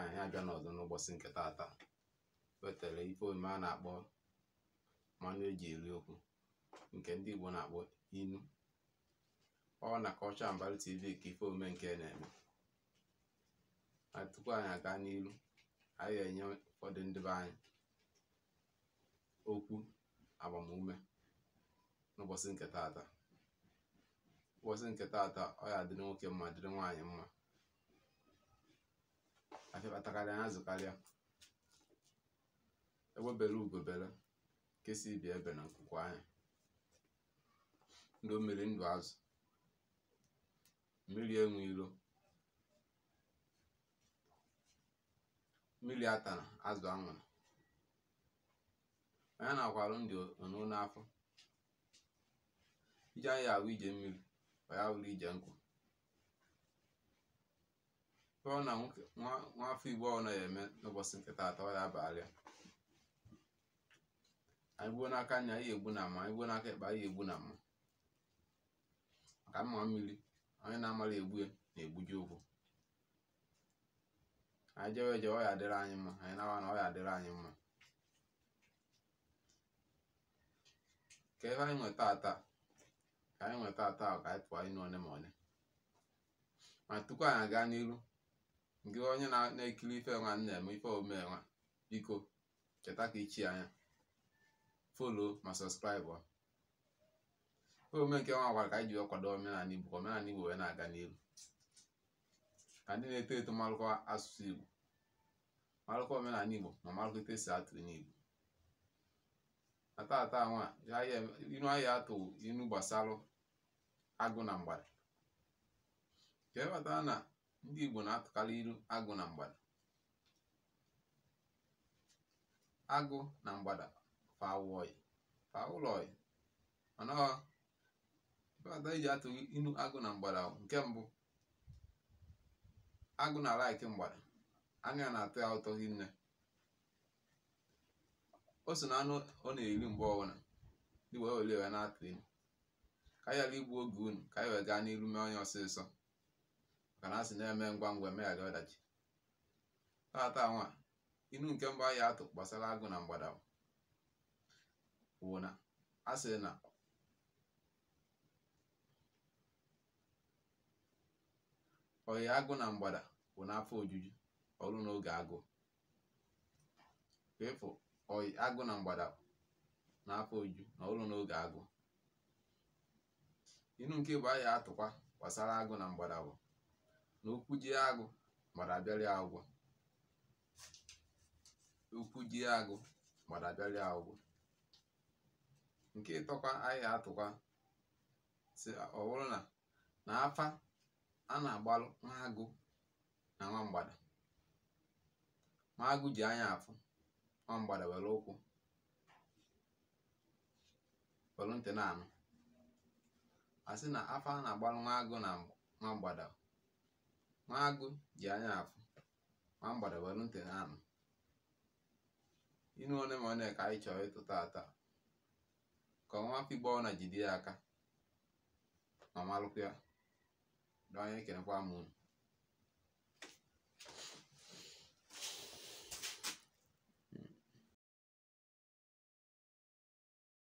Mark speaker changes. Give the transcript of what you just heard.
Speaker 1: anyị abịa n'ọzọ n'ụbọchị nke taata wetara ife omume a na-akpọ mmanụ eji eri okwu nke ndị Igbo na-akpọ inu ọ na Cultural Mbali TV ka ife omume nke na-eme na tupu anyị aga n'iru anyị ga-enye ụfọdụ ndị anyị okwu agbamume n'ụbọchị nke taata ụbọchị nke taata ọ ya dịrị nwoke mma dịrị nwaanyị mma apịakọtakarị anya azụkarịa ewebere ugobere nke si ibi ebe na nkwụkwọ anya ndụ mmiri ndụ azụ mmiri enwe ilo mmiri atara azụ anwụrụ onye na-akwarụ ndị ono n'afọ iji anyị ahụ ije mmiri kwa ya wụrụ ije nkụ. tụọ na nwa afọ igbo ọ na-eme n'ụbọchị nke taata ọ ya abalị anyị gbuo n'aka anya ihe egbu na ama anyị gbuo n'aka ekpe ihe egbu na ama maka mma mmiri onye na-amara egbu na-egbuji ụkwụ anyị jewe eje ọ ya adịrị anyị mma anyị na-awa na ọ ya adịrị anyị mma ka ebe anyị nweta ata ka anyị nweta ata ka anyị pụọ ịnụ one ma one ma tupu anyị aga n'iru ngị onye na-ekiri ife nwa nna m ife omume biko cheta ka ichi anya folo ma sọskraịbụ ife omume nke nwa gwara ka anyị ji kwado omenala igbo ka omenala igbo wee na-aga n'elu ka ndị na-eto eto marụkọ asụsụ igbo marụkọ omenala igbo ma marụkọ ite esi atụ n'igbo na nwa inu ahịa atụ inu gbasarụ agụ na mgbada ka e ndị Igbo na-atụkarị ilu agụ na mgbada agụ na mgbada fa awọị fa ụlọ ọị mana ọbata iji atụ ilu agụ na mgbada nke mbụ agụ na alaiki mgbada anya na atụ ya ụtọ hinne o so na anụ ọ na-eri mgbe ọbụla ndị wee were ya na-atụ ilu ka anyị ala igbu oge unu ka anyị wee gaa n'iru mee onye ọsịsọ ka na asị na-eme ngwa ngwa emeghara ọdachi tata nwa inu nke mba ya atụ gbasara agụ na mgbada bụ na a na oyi agụ na mgbada bụ n'afọ ojuju ọrụ na mgbada ọrụ n'oge agụ atụkwa gbasara agụ na mgbada na ụkwụ ji agụ mara abịarị agwọ Okwu ji agụ mara abịarị agwọ nke ịtọkwa ahịa atụkwa si ọ bụrụ na na afa a na-agbalụ nwa agụ na nwa mgbada nwa agụ ji anya afụ nwa mgbada were ụkwụ were ntị na anụ a sị na afa a na-agbalụ nwa agụ na nwa mgbada nwa agụ ji anya afụ ma mgbada were ntị na-anụ ịnụ one ma one ka anyị chọrọ ịtụta ata ka ọnwa afọ na jide ya aka ma malụkwa ya na onye kenekwa m